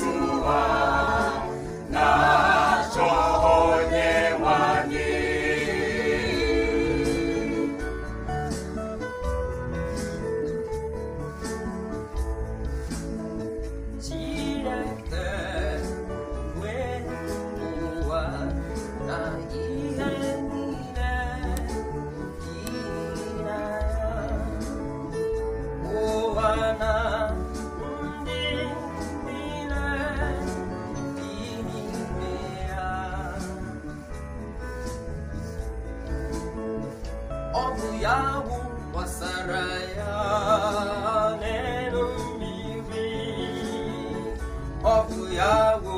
to us. ọgụ ya bụ gbasara ya n'elu mmiri bụ ya bụ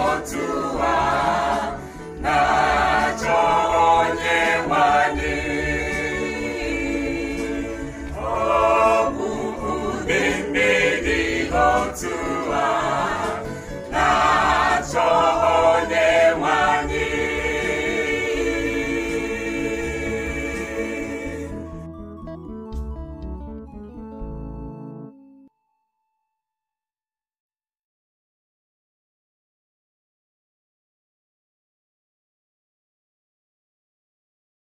want to